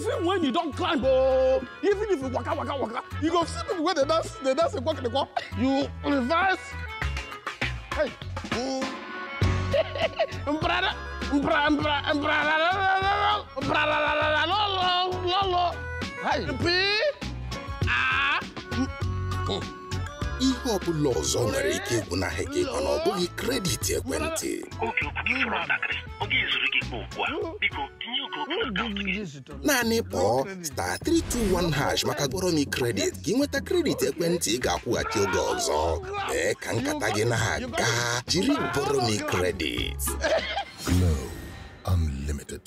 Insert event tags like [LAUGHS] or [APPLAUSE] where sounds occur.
even when you don't climb oh even if you waka waka waka you go see people wey they dance they dance walk and walk. you reverse hey [LAUGHS] mbrada mbra mbra mbrada ọzọ ah. hmm. nwere ike ịgwụ na gị mana ọ bụghị kredit ekwentị Igbo ugbu a naanị kpọọ star 321 hash maka goromi kredit gị nweta kredit ekwentị ị ga-akwụghachi oge ọzọ mee ka nkata gị na-aga jiri goromi kredit Glow Unlimited